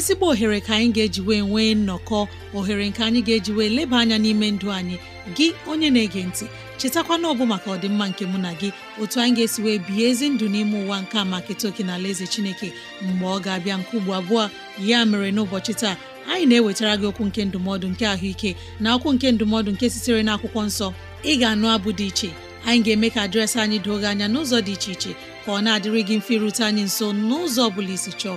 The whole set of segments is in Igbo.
ezigbo ohere ka anyị ga-eji wee nwee nnọkọ ohere nke anyị ga-eji wee leba anya n'ime ndụ anyị gị onye na-ege ntị chetakwana ọbụ maka ọdịmma nke mụ na gị otu anyị ga-esi wee bihe ezi ndụ n'ime ụwa nke a maka etoke na ala eze chineke mgbe ọ ga-abịa nke ugbo abụọ ya mere n'ụbọchị taa anyị na-ewetara gị okwu nke ndụmọdụ nke ahụike na okwu nke ndụmọdụ nke sitere na akwụkwọ nsọ ị ga-anụ abụ dị iche anyị ga-eme ka dịrasị anyị doo gị anya n'ụzọ dị iche iche ka ọ na-adịrị mfe irute anyị nso n'ụzọ ọ bụla isi chọọ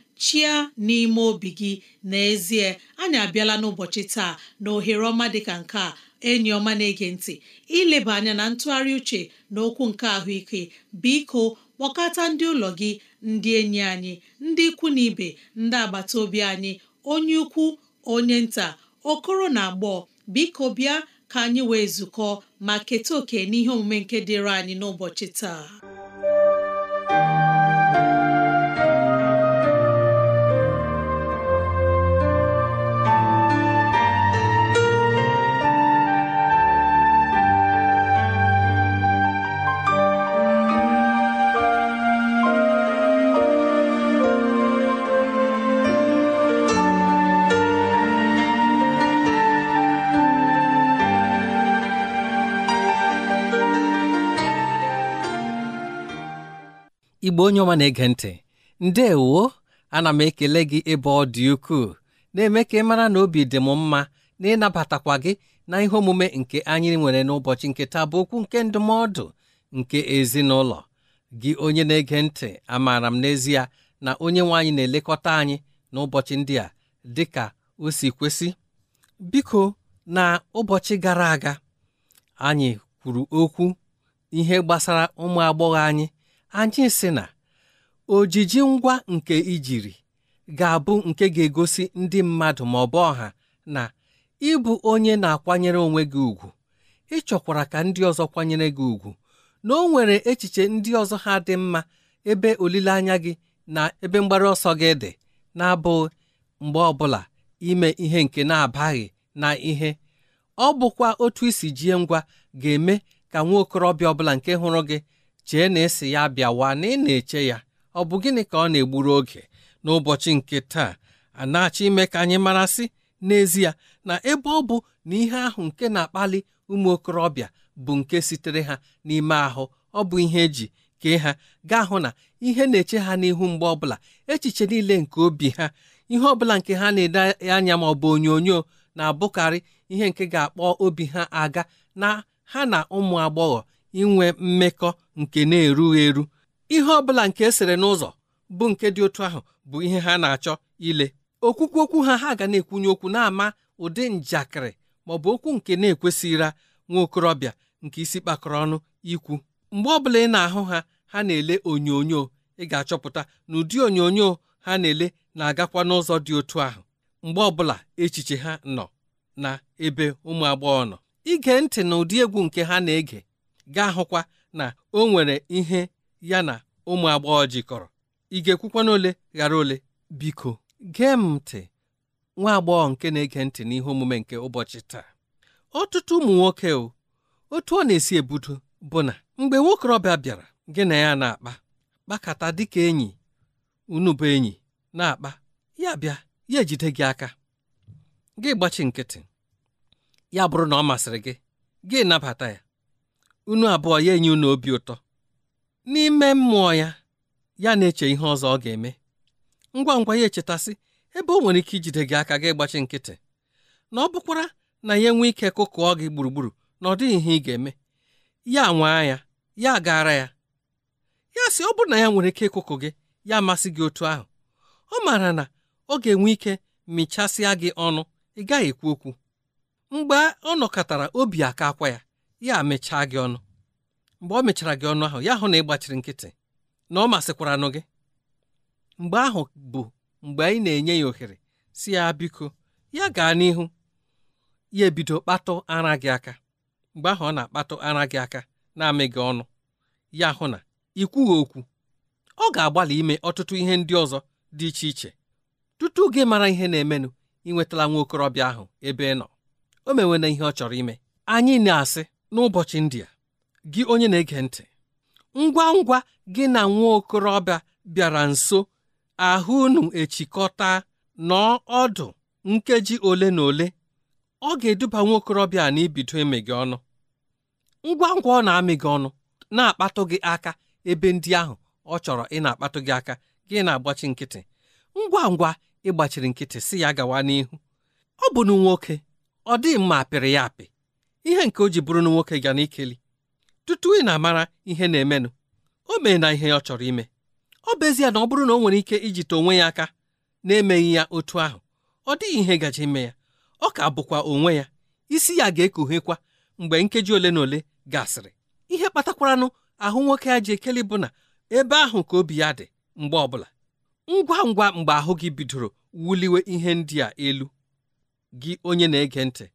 chia n'ime obi gị n'ezie anyị abịala n'ụbọchị taa na ohere ọma dịka nke a enyi ọma na-ege ntị ileba anya na ntụgharị uche na okwu nke ahụike biko kpọkọta ndị ụlọ gị ndị enyi anyị ndị ikwu na ibe ndị agbata obi anyị onye ukwu onye nta okoro na agbọọ biko bịa ka anyị wee zukọ ma keta oke n'ihe omume nke dịịrị anyị n'ụbọchị taa igbo onye ọma na-ege ntị ndewo ana m ekele gị ebe ọ dị ukwuu na-eme ka ị mara na obi dị m mma na ịnabatakwa gị na ihe omume nke anyị nwere n'ụbọchị nke taa bụ okwu nke ndụmọdụ nke ezinụlọ gị onye na-ege ntị amaara m n'ezie na onye nwe anyị na-elekọta anyị n'ụbọchị ndị a dị ka o si kwesị biko na ụbọchị gara aga anyị kwuru okwu ihe gbasara ụmụ agbọghọ anyị anyị sị na ojiji ngwa nke ijiri ga-abụ nke ga-egosi ndị mmadụ ma ọ bụ ọha na ịbụ onye na-akwanyere onwe gị ugwu ịchọkwara ka ndị ọzọ kwanyere gị ugwu na o nwere echiche ndị ọzọ ha dị mma ebe olileanya gị na ebe mgbaru ọsọ gị dị na-abụghị mgbe ọbụla ime ihe nke na-abaghị na ihe ọ bụkwa otu isi jie ngwa ga-eme ka nwa okorobịa ọbụla nke hụrụ gị chee na esi ya bịawa na ị na-eche ya ọ bụ gịnị ka ọ na-egburu oge n'ụbọchị nke taa a na-achọ ime ka anyị marasị n'ezie na ebe ọ bụ na ihe ahụ nke na-akpali ụmụ okorobịa bụ nke sitere ha n'ime ahụ ọ bụ ihe eji kee ha gaa hụ na ihe na-eche ha n'ihu mgbe ọbụla echiche niile nke obi ha ihe ọbụla nke ha na-ede anya ma ọ bụ onyonyo na-abụkarị ihe nke ga-akpọ obi ha aga na ha na ụmụ agbọghọ inwe mmekọ nke na-erughị eru ihe ọbụla nke esere n'ụzọ bụ nke dị otu ahụ bụ ihe ha na-achọ ile okwukwu okwu ha ha ga na-ekwunye okwu na-ama ụdị njakịrị ma ọ bụ okwu nke na-ekwesịra nwa okorobịa nke isi kpakọrọ ọnụ ikwu mgbe ọbụla ị na-ahụ ha ha na-ele onyonyo ị ga-achọpụta na ụdị onyonyo ha na-ele na-agakwa n'ụzọ dị otu ahụ mgbe ọbụla echiche ha nọ na ebe ụmụ agbọghọ nọ ige ntị na ụdị egwu nke ha na-ege ga-ahụkwa na o nwere ihe ya na ụmụ agbọghọ jikọrọ ị ga-ekwukwa n'ole ghara ole biko gee m ntị nwa agbọghọ nke na-ege ntị n'ihe omume nke ụbọchị taa ọtụtụ ụmụ nwoke o otu ọ na-esi ebudo bụ na mgbe nwokorobịa bịara gị na ya na-akpa kpakọta dịka enyi unu bụ enyi na-akpa ya bịa ya ejide gị aka gị gbachi nkịtị ya bụrụ na ọ masịrị gị gị nabata ya unu abụọ ya enye unu obi ụtọ n'ime mmụọ ya ya na-eche ihe ọzọ ọ ga-eme ngwa ngwa ya echetasị ebe o nwere ike ijide gị aka gị gbachi nkịtị na ọ bụkwara na ya enwe ike kụkụọ gị gburugburu na ọ dịghị ihe ị ga-eme ya nwaa ya ya gara ya ya sị ọ bụrụ na ya nwere ike ịkụkụ gị ya amasị gị otu ahụ ọ maara na ọ ga-enwe ike mịchasịa gị ọnụ ị gaghị ekwu okwu mgbe ọ nọkọtara obi aka akwa ya ya mechaa gị ọnụ mgbe ọ mechara gị ọnụ ahụ ya hụ na ị gbachiri nkịtị na ọ masịkwaranụ gị mgbe ahụ bụ mgbe anyị na-enye ya ohere si ya biko ya gaa n'ihu ya ebido kpatụ ara gị aka mgbe ahụ ọ na-akpatụ ara gị aka na-amị gị ọnụ ya hụ na ikwughị okwu ọ ga-agbalị ime ọtụtụ ihe ndị ọzọ dị iche iche tutu gị mara ihe na-emenụ ịnwetala nwa okorobịa ahụ ebe ị nọ o mewe ihe ọ chọrọ ime anyị na-asị n'ụbọchị ndị a gị onye na-ege ntị ngwa ngwa gị na nwa okorobịa bịara nso ahụ unu echikọta nọọ ọdụ nkeji ole na ole ọ ga-eduba nwa okorobịa a n'ibido eme gị ọnụ ngwa ngwa ọ na-amị gị ọnụ na-akpatụ gị aka ebe ndị ahụ ọ chọrọ ị na-akpatụ gị aka gị na-agbachi nkịtị ngwa ngwa ịgbachiri nkịtị si ya gawa n'ihu ọ bụ na nwoke ọ dịghị mma apịrị ya apị ihe nke o ji bụrụ na nwoke ga na ikeli tutu ị na-amara ihe na-emenụ o mee na ihe ọ chọrọ ime ọ bụ ezie na ọ bụrụ na o nwere ike ijite onwe ya aka na-emeghị ya otu ahụ ọ dịghị ihe gaji ime ya ọ ka bụkwa onwe ya isi ya ga-ekoghekwa mgbe nkeji ole na ole gasịrị ihe kpatakwaranụ ahụ nwoke ya ji ekeli bụ na ebe ahụ ka obi ya dị mgbe ọbụla ngwa ngwa mgbe ahụ gị bidoro wuliwe ihe ndị a elu gị onye na-ege ntị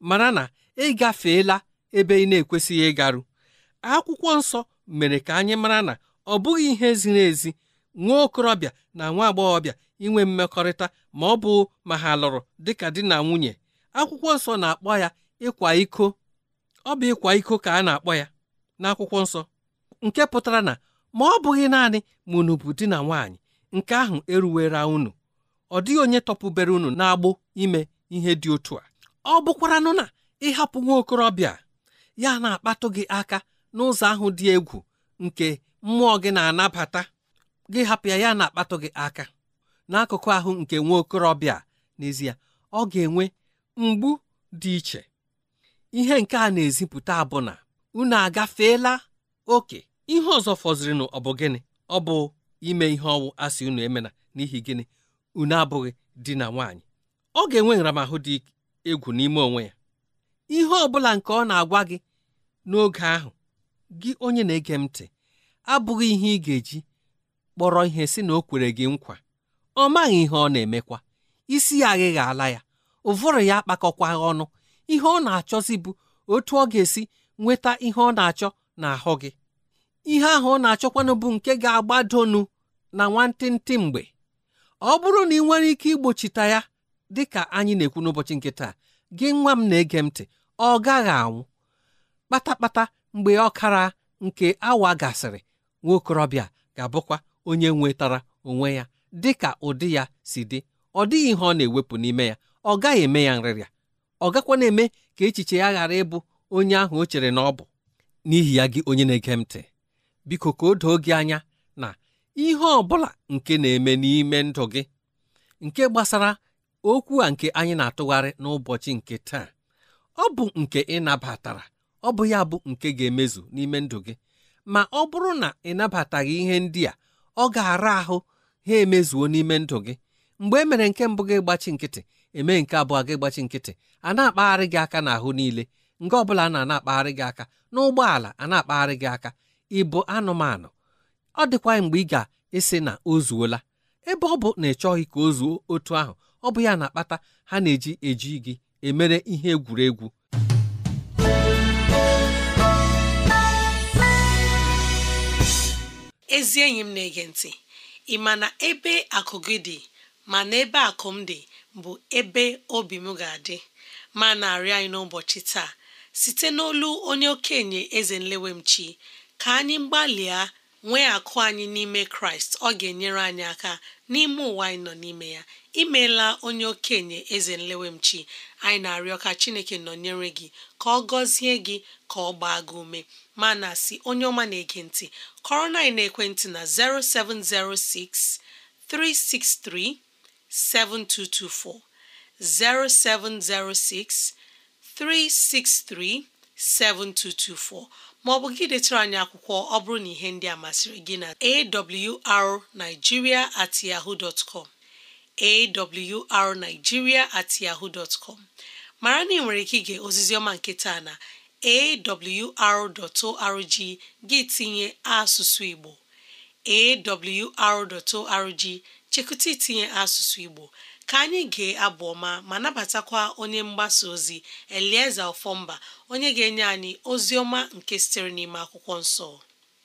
mara na ị ebe ị na-ekwesịghị ịgaru akwụkwọ nsọ mere ka anyị mara na ọ bụghị ihe ziri ezi nwa okorobịa na nwa agbọghọbịa inwe mmekọrịta ma ọ bụ ma ha lụrụ dịka di na nwunye akwụkwọ nsọ na-akpọ ya ịkwa iko ọ bụ ịkwa iko ka a na-akpọ ya n'akwụkwọ nsọ nke pụtara na ma ọ bụghị naanị ma unu bụ di na nwaanyị nke ahụ eruwera unu ọ dịghị onye tọpụbere unu na-agbụ ime ihe dị otu a ọ bụkwaranụ na ịhapụ nwa okorobịa ya na-akpatụ gị aka n'ụzọ ahụ dị egwu nke mmụọ gị na-anabata gị hapụ ya ya na-akpatụ gị aka n'akụkụ ahụ nke nwa okorobịa n'ezie ọ ga-enwe mgbu dị iche ihe nke a na-ezipụta abụna na unu agafeela oke ihe ọzọ fọzirinụ ọ bụ gịnị ọ bụ ime ihe ọnwụ asị unu emena n'ihi gịnị unu abụghị di na nwaanyị ọ ga-enwe nramahụ dị egwu n'ime onwe ya ihe ọ bụla nke ọ na-agwa gị n'oge ahụ gị onye na-ege m ntị abụghị ihe ị ga-eji kpọrọ ihe si na o kwere gị nkwa ọ maghị ihe ọ na-emekwa isi ya aghịghị ala ya ụvụrụ ya akpakọkwa ọnụ ihe ọ na-achọzi bụ otu ọ ga-esi nweta ihe ọ na-achọ n'ahụ gị ihe ahụ ọ na-achọkwanụ bụ nke ga-agbadonu na nwantịntị mgbe ọ bụrụ na ị nwere ike igbochita ya dị ka anyị na-ekwu n'ụbọchị nkịta gị nwa m na-ege m ntị ọ gaghị anwụ kpatakpata mgbe ọkara nke awa gasịrị nwaokorobịa ga-abụkwa onye nwetara onwe ya dị ka ụdị ya si dị ọ dịghị ihe ọ na-ewepụ n'ime ya ọ gaghị eme ya nrịrịa ọ gakwa na-eme ka echiche ya ghara ịbụ onye ahụ o chere na ọ bụ n'ihi ya gị onye na-ege ntị biko ka o doo gị anya na ihe ọ bụla nke na-eme n'ime ndụ gị nke gbasara okwu a nke anyị na-atụgharị n'ụbọchị nke taa ọ bụ nke ị nabatara ọ bụ ya bụ nke ga-emezu n'ime ndụ gị ma ọ bụrụ na ị nabataghị ihe ndị a ọ ga-ara ahụ ha emezuo n'ime ndụ gị mgbe e mere nke mbụ gị gbachi nkịtị eme nke abụọ gị gbachi nkịtị a na-akpagharị gị aka n'ahụ niile nke ọ bụla na akpagharị gị aka n'ụgbọala a na-akpagharị gị aka ịbụ anụmanụ ọ dịkwa mgbe ị ga-esi na o zuola ebe ọ bụ na ị chọghị ka o zuo otu ahụ ọ bụ ya na-akpata ha na-eji eji gị emere ihe egwuregwu ezi enyi m na-ege ntị ị ma na ebe akụ gị dị ma na ebe akụ m dị bụ ebe obi m ga-adị ma na arị anyị n'ụbọchị taa site n'olu onye okenye eze m nlewemchi ka anyị gbalịa nwee akụ anyị n'ime kraịst ọ ga-enyere anyị aka n'ime ụwa anyị nọ n'ime ya imeela onye okenye eze nlewemchi anyị na-arịọ ka chineke nọnyere gị ka ọ gọzie gị ka ọ gbaa gị ume ma na si onye ọma na-ege ntị kọrọ na ekwentị na 0706 363 7224 0706 363 7224 ma ọ bụ gị detara anyị akwụkwọ ọ bụrụ na ihe ndị a masịrị gị na awrnigeria at yahoo dot awrnigeria at yahoo mara na ị nwere ike ige ozizioma ọma nke taa na awr.org gị tinye asụsụ Igbo awr.org chekụta itinye asụsụ Igbo ka anyị gee abụ ọma ma nabatakwa onye mgbasa ozi elieze Ọfọmba onye ga-enye anyị ozi ọma nke sitere n'ime akwụkwọ nsọ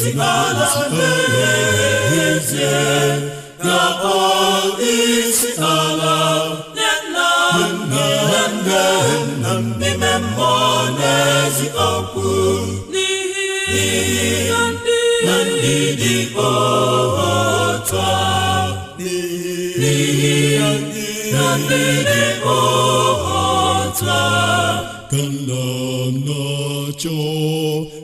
izikala n'ezie ga-akpọ isi ala nne nna nne nne nna n'ime mmụọ n'ezi okwu n'ihi na ndị na ka nna m na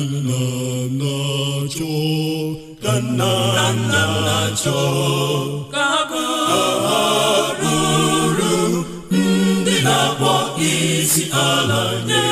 na kananacho ka ha ruru ndị na-akpọ isi ala nye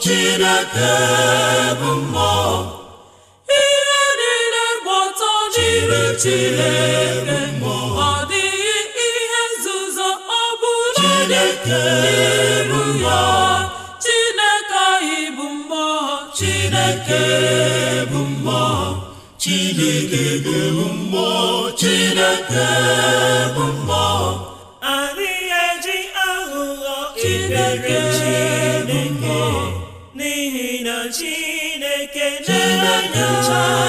Chineke bụ mmụọ ihe niile gba ọtọ Chineke ọ dịghị ihe nzuzo ọ bụla n'iru ya Chineke anyị bụ mmụọ Chineke bụ mmụọ Chineke bụ mmụọ Chineke Chineke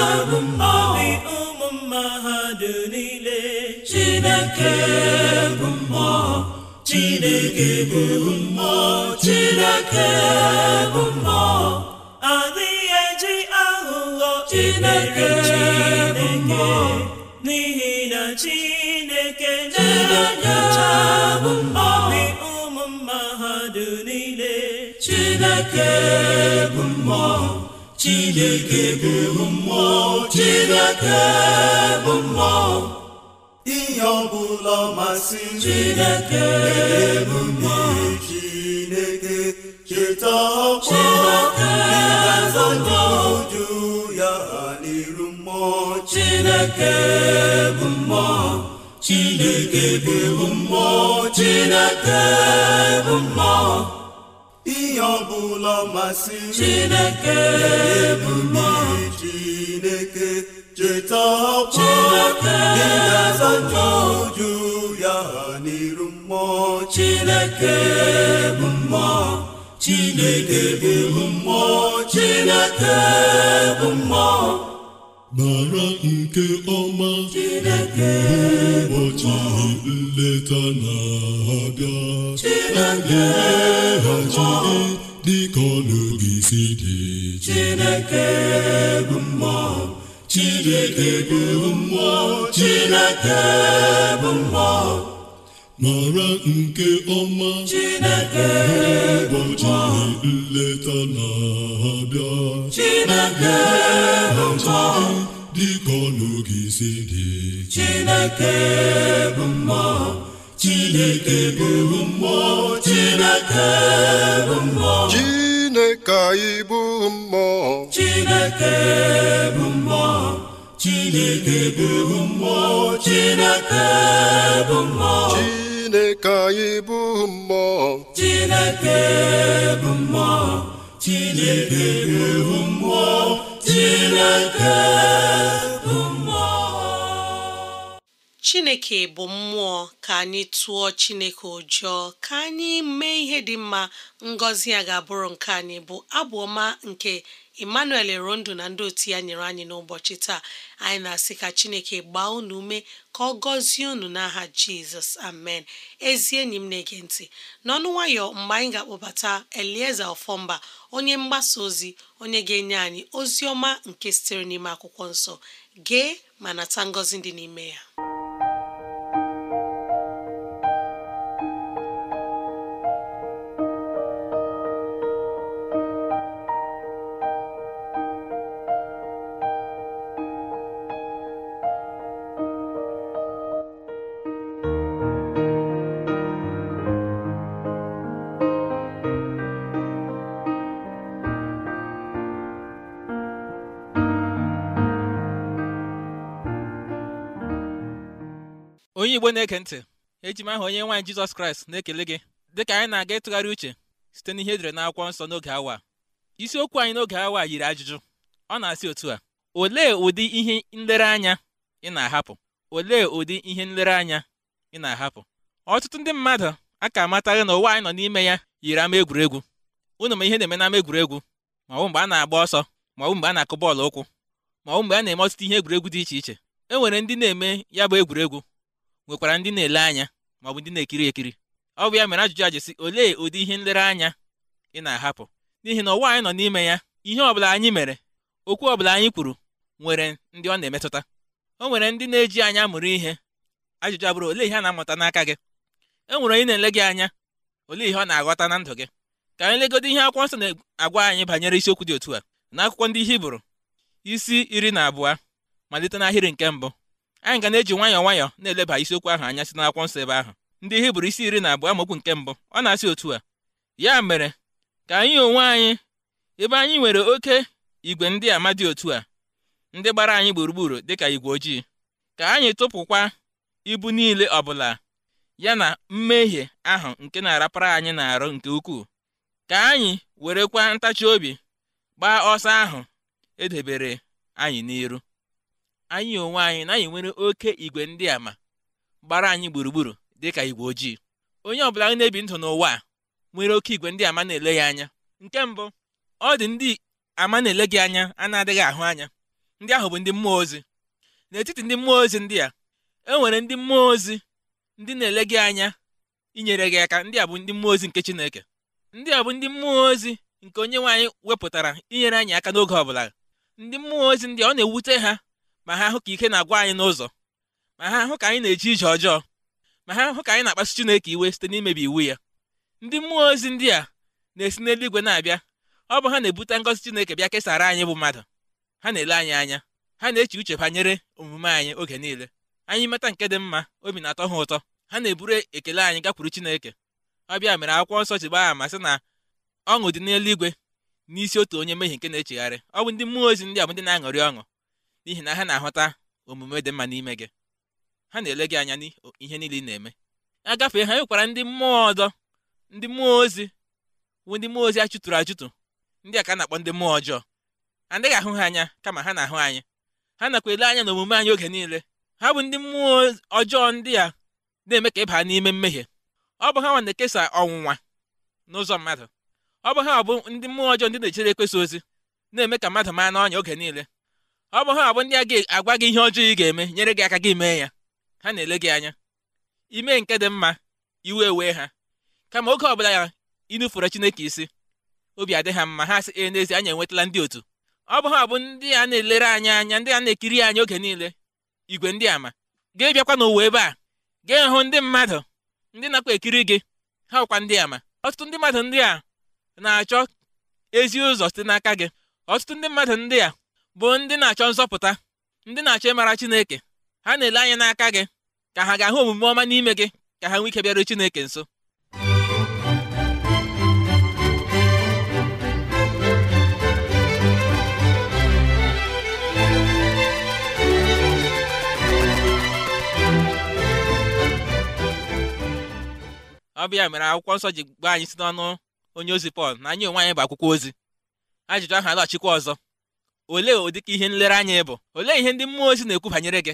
obi ụmụ mmadụ niile Chineke bụ mmụọ Chineke bụ mmụọ bụ adịghị eji aghụghọ Chineke n'ihi na Chineke na-enyocha obi ụmụ mmadụ niile Chineke bụ mmụọ chineke bụ mmụọ chineke bụ mmụọ ihe ọbụla masị chineke bụ mmụọ chineke cheta ọkwa ịgazọnyeụju ya n'iru mmụọ chineke bụ mmụọ chineke bụ mmụọ chineke bụ mmụọ ihe ọbụla masị Chineke bụ mmụọ Chineke cheta ọkụ ị ga-aza njọju ya n'iru mmụọ Chineke bụ mmụọ Chineke bụ mmụọ Chineke bụ mmụọ mara nke ọma Chineke ụbọchị nleta na-abịa bụ Chineke bụ mara nke ọma Chineke ụbọchị nleta na-abịa Chineke bụ dịka Chineke bụ mmụọ chineke bụ mmụọ chineke bụ mmụọ chineke anyị bụ mmụọ chineke bụ mmụọ chineke bụ mmụọ chineke bụ mmụọ chineke anyị bụ mmụọ chineke bụ mmụọ chineke bụ mmụọ chineke Chineke bụ mmụọ ka anyị tụọ Chineke ụjọ ka anyị mee ihe dị mma ngọzi ya ga-abụrụ nke anyị bụ abụ ọma nke Emmanuel Rondo na ndị otu ya nyere anyị n'ụbọchị taa anyị na-asị ka Chineke gbaa unu ume ka ọ gọzie unu n'aha Jizọs amen ezi enyi m na-ege ntị n'ọnụ nwayọ mgbe anyị ga-akpọbata Elieza Ọfọmba onye mgbasa ozi onye ga-enye anyị ozi ọma nke sitere n'ime akwụkwọ nsọ gee ma nata ngọzi dị n'ime ya igwe na eke ntị eji m aha onye nwaanyị jizọs kraịst na-ekele gị dịka anyị na-aga ịtụgharị uche site n'ihe edere n'akwụkwọ nsọ n'oge awa isiokwu anyị n'oge awa yiri ajụjụ ọ na-asị otu a olee ụdị ihe nlereanya ị na-ahapụ olee ụdị ihe nlereanya ị na-ahapụ ọtụtụ ndị mmadụ a ka na ụwa anyị nọ n'ime ya yiri ama egwuregwu unu ma ihe na-eme n'ama egwuregwu ma ọ mgbe a na-agba ọsọ ma ọ mgbe a na-akụ bọọlụ ụkwụ ma ọ mgbe a na-eme ọtụtụ ihe egwuregwu dị iche iche e nwere ndị na-eme ya bụ egwuregwu nwekwara ndị na-ele anya maọbụ ndị na-ekiri ekiri ọ bụ ya mere ajụjụ a jesi olee ụdị ihe nlereanya ị na-ahapụ n'ihi na ụwa anyị nọ n'ime ya ihe ọbụla anyị mere okwu ọbụla anyị kwuru nwere ndị ọ na-emetụta o nwere ndị na-eji anya mụrụ ihe ajụjụ abụrụ olee ihe a na-amụta n'aka gị e nwere onye na-ele gị anya olee ihe ọ na-aghọta na ndụ gị ka anyị legodo ihe akwụkwọ nsọ na-agwa anyị banyere isiokwu dị otu a n'akwụkwọ ndị Hibru isi iri na abụọ malite n'ahịrị nke mbụ anyị ga na-eji nwayọọ nwayọọ na-eleba isiokwu ahụ anya si n'akwụkwọ nsọ ebe ahụ ndị hibru isi iri na abụọ amaokwu nke mbụ ọ na-asị otu a ya mere ka anyị onwe anyị ebe anyị nwere oke igwe ndị ama dị otu a ndị gbara anyị gburugburu dịka igwe ojii ka anyị tụpụkwa ibu niile ọbụla ya na mmehie ahụ nke na-arapara anyị na-arụ nke ukwuu ka anyị werekwa ntachi obi gbaa ọsọ ahụ edebere anyị n'iru anyị onwe anyị na anyị nwere oke igwe ndị a ma gbara anyị gburugburu dị ka igwe ojii onye ọbụla anyị na-ebi ndụ n'ụwa a nwere oke igwe ndị ama na-ele ya anya nke mbụ ọ dị ndị ama na-ele gị anya a na-adịghị ahụ anya ndị ahụ bụ ndị mmụọ ozi n'etiti ndị mmụọ ozi ndị a e nwere ndị mmụọ ozi ndị na-ele gị anya inyere gị aka ndị a bụ ndị mmụọ ozi nke Chineke ndị a bụ ndị mmụọ ozi nke onye nwe anyị wepụtara inyere anyị aka n'oge bụla ndị mmụọ ozi ndị ọ na-ewute ha ma ha hụ ka ike na-agwa anyị n'ụzọ ma ha hụ ka anyị na-eji ije ọjọọ ma ha hụ ka anyị na-akpasu Chineke iwe site n'imebi iwu ya ndị mmụọ ozi ndị a na-esi n'eluigwe na-abịa ọ bụ ha na-ebute ngọzi Chineke bịa kesara anyị bụ mmadụ ha na-ele anyị anya ha na-eche uche banyere omume anyị oge niile anyị meta nke dị mma obi na-atọ ha ụtọ ha na-eburu ekele anyị gakwuru Chineke ọ bịa mere akwụkwọ nsọ ji gba ama sị na ọṅụ dị n'eluigwe n'isi otu onye mmehie nke na-echegharị ọ bụ ndị mmụọ ozi ndị a bụ ndị na-aṅụrị ọṅụ n'ihi na ha na-ahụta omume dị mma n'ime gị ha na-ele gị anya ihe niile ị na-eme agafee ha nwekwara ndị mmụọ ọzọ ndị mmụọ ozi bụ ndị mmụọ ozi achụtụrụ achụtụ ndị a ka na-akpọ ndị mmụọ ọjọọ adịghị ahụ ha anya kama ha na-ahụ anyị ha nakwa ele anya na omume anyị oge niile ha bụ ndị mmụọ ọjọọ ndị a na-eme ka ịba n'ime mmehie ọ bụ ha nwa na-ekesa ọnwụnwa n'ụzọ mmadụ ọ bụ ha bụ ndị mmụọ ọjọọ ndị na-echere ekwesa ozi na-eme ka mmadụ maa n'ọnya oge niile ọ bụ ha abụ ndị a ga-agwa gị ihe ọjọọ ị ga-eme nyere gị aka gị mee ya ha na-ele gị anya ime nke dị mma iwe ewee ha kama oge ọbụla ya inufere Chineke isi obi adị ha mma ha sị e n'ezie anya enwetala ndị otu ọ bụ ha abụ ndị a na-elere anyị anya ndị a na-ekiri anyị oge niile igwe ndị ama ga-ebiakwa n'ụwa ebe a gee hụ ndị mmadụ ndị nakwa ekiri gị ha ụkwa ndị ama ọtụtụ ndị mmadụ ndị a na-achọ ezi ụzọ site n'aka gị ọtụtụ ndị mmadụ ndị a bụ ndị na-achọ nzọpụta ndị na-achọ ịmara Chineke ha na-ele anya n'aka gị ka ha ga-ahụ omume ọma n'ime gị ka ha nwee ike bịaruo Chineke nso ọ bịa mere akwụkwọ nsọ ji gbaa anyị si n'ọnụ onye ozi Pọl na anyị onwe anyị bụ akwụkwọ ozi ajụjụ ahụ alaghachikwa ọzọ olee ụdịka ihe nlereanya ị bụ olee ihe ndị mmụọ ozi na-ekwu banyere gị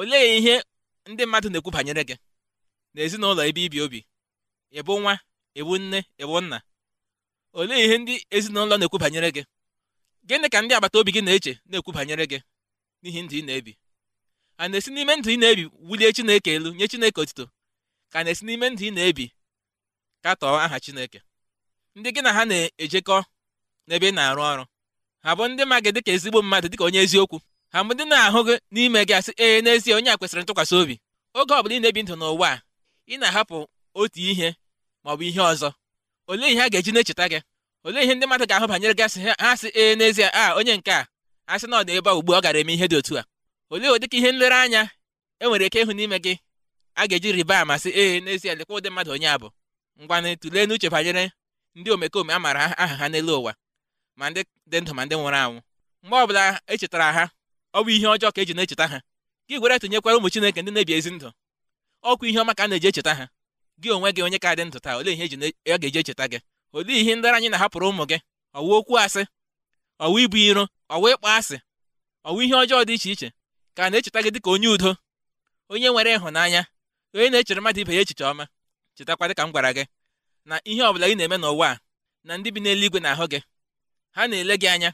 olee ihe ndị mmadụ na-ekwu banyere gị ezinụlọ ebe ibi obi ịbụ nwa ịbụ nne ịbụ nna olee ihe ndị ezinụlọ na-ekwu banyere gị gịnị ka ndị agbata obi gị na-eche na-ekwu banyere gị n'ihi ndụ ị na-ebi a na-esi n'ime ndụ ị na-ebi wulie Chineke elu nye Chineke otito ka na-esi n'ime ndụ ị na-ebi katọọ aha Chineke ndị gị na ha na-ejekọ n'ebe ị na-arụ ọrụ ha bụ ndị ma gị dịka ezigbo mmadụ dịka onye eziokwu ha bụ ndị na-ahụ gị n'ime gị asị ee n'ezie onye a kwesịrị ntụkwasị obi oge ọ bụla ị na-ebi ndụ n'ụwa a ị na-ahapụ otu ihe ma ọ bụ ihe ọzọ olee ihe a ga-eji na-echeta gị olee ihe ndị mmadụ ga-ahụ banyere gị asị ha sị ee n'ezie a onye nke a asị na ọ dị ebe a ugbu ọ gara eme ihe dị otu a olee ụdịka ihe nlereanya e nwere ike ịhụ n'ime gị a ga-eji rịba ama sị ee n'ezie dịkwa ụdị mmadụ onye a bụ ngwanị tụlee n'uche banyere ndị omekome a maara aha ha n'elu ụwa ma ndị dị ndụ ma ndị nwụrụ anwụ mgbe ọbụla echetara ha ọ bụ ihe ọjọọ ka eji na-echeta ha gị gwere tinyekwara ụmụ chineke ndị na-ebi ezi ndụ ọkwa ihe ọma ka a na-eji echeta ha gị onwe gị onye ka dị ndụ taa olee ihe ọ e ga-eji echeta gị olee ihe ndị anyị na-ahapụrụ ụmụ gị ọwụ okwu asị ọwụ ibu iro ọwụ ịkpọ asị ọwụ ihe ọjọọ dị iche iche ka na-echeta gị dịka onye udo onye nwere ịhụnanya onye na-echere mmadụ ibe ya echiche ọma chetakwa dịka m gwara gị na ihe ọ bụla ị na-eme n'ụwa a na ndị bi n'eluigwe na-ahụ gị ha na-ele gị anya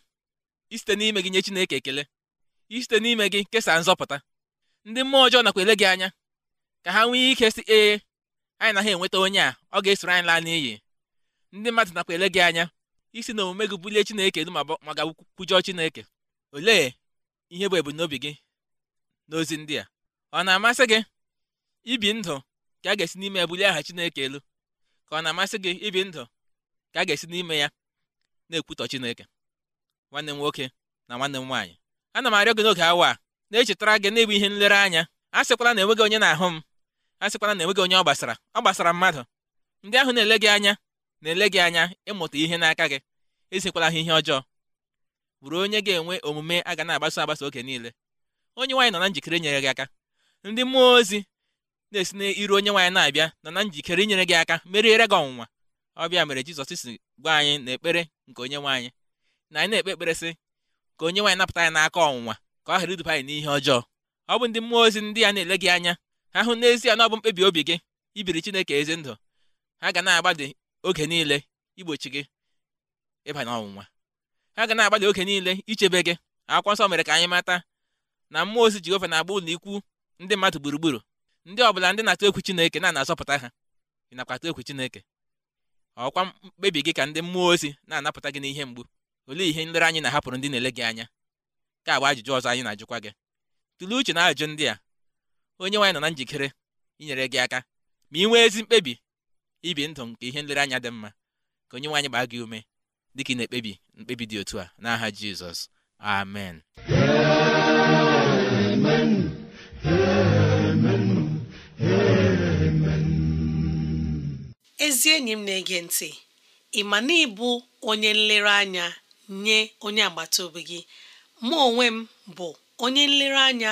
isite n'ime gị nye Chineke ekele isite n'ime gị kesaa nzọpụta ndị mmụọ ọjọọ nakwa ele gị anya ka ha nwee ike si ee anyị naghị enweta onye a ọ ga-esoro anyị laa n'iyi ndị mmadụ nakwa ele gị anya isi na omume gị bulie Chineke elu ma gakwujọọ Chineke olee ihe bụ ebumnobi gị n'ozi ndị a ọ na-amasị gị ibi ndụ ka a ga-esi n'ime ya bulie aha Chineke elu ka ọ na-amasị gị ibi ndụ ka a ga-esi n'ime ya na-ekwutọ Chineke nwanne m nwoke na nwanne m nwaanyị ana m arịọ gị n'oge awa a na-echetara gị na-ebu ihe nlereanya a sịkwala na enweghị onye na-ahụ m a sịkwala na enweghị onye ọ gbasara ọ gbasara mmadụ ndị ahụ na-ele gị anya na-ele gị anya ịmụta ihe n'aka gị esekwala ha ihe ọjọọ bụrụ onye ga-enwe omume a ga na-agbaso agbasa oge niile onye nwaanyị nọ na njikere inyere gị aka ndị mmụọ ozi na-esi n'iru onye nwaanyị na-abịa nọ na njikere inyere gị aka meriere gị ọnwụnwa ọbịa mere jizọs si gwa anyị na ekpere nke onye nwe na anyị na-ekpe ekpere sị ka onye nwaanyị napụta anyị n'aka ọnwụnwa ka ọ ghara iduba anyị n'ihe ọjọọ ọ bụ ndị mmụọ ozi ndị a na-ele gị anya ha hụ n'ezie na ọ bụ mkpebi obi gị ibiri chineke ezi ndụ ha ga na-agbadị oge niile igbochi gị ịba n'ọnwụnwa ha ga na-agbadị oge niile ichebe gị akwụkwọ nsọ mere ka anyị mata na mmụọ ozi jehova na-agba ụlọ ikwu ndị mmadụ gburugburu ndị ọbụla ndị na-atụ egwu chineke na azọpụta ha ị nakwa atụ chineke ọkwa mkpebi gị ka ndị mmụọ ozi na-anapụta gị n'ihe mgbu olee ihe nlere anyị na-ahapụrụ ndị na-ele gị anya ka agba ajụjụ ọzọ anyị na-ajụkwa gị tụlee uche na ajụjụ ndị a onye nwaanyị nọ na njikere inyere gị aka ma ị nwee ezi mkpebi ibi ndụ nke ihe nlereanya dị mma ka onye nwaanyị gbaa gị ume dịka ị na-ekpebi mkpebi dị otu a n'aha Jizọs amen amen amen amen ezi enyi m na-ege ntị ị ma na ịbụ onye nlereanya nye onye agbata obi gị mụ onwe m bụ onye nlereanya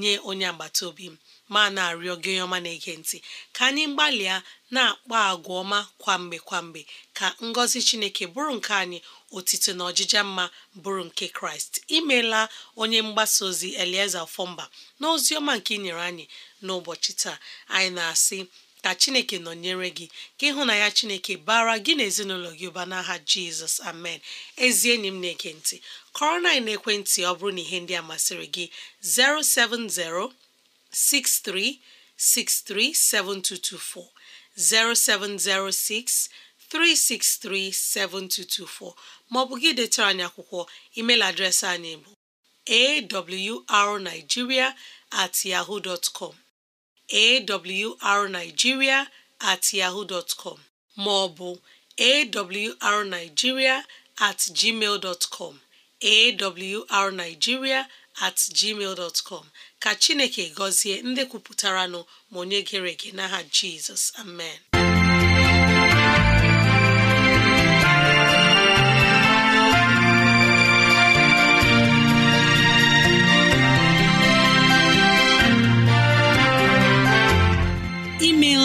nye onye agbata obi m ma na-arịọ gị na-ege ntị ka anyị gbalịa na-akpa agwa ọma kwamgbe kwamgbe ka ngọzi Chineke bụrụ nke anyị otito na ọjịja mma bụrụ nke Kraịst imeela onye mgbasa ozi Elieza Fọmba na ozi ọma nke ị nyere anyị n'ụbọchị taa anyị na-asị ka chineke nọnyere gị ka ya chineke bara gị na ezinụlọ gị ụba n'aha jizọs amen ezi enyi m na-ege ntị kọrọ na ekwentị ọ bụrụ na ihe ndị a masịrị gị 070 6363 7224 maọbụ gị detara anyị akwụkwọ email adreesị anyị bụ awrnigeria at yaho awrnigeria@yahoo.com at yahoo dotcom maọbụ ma ọ bụ awrnigeria@gmail.com at gmail dot com at gmail dot com ka Chineke gọzie ndị kwupụtaranụ ma onye gere ege n'aha Jizọs amen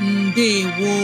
ndewo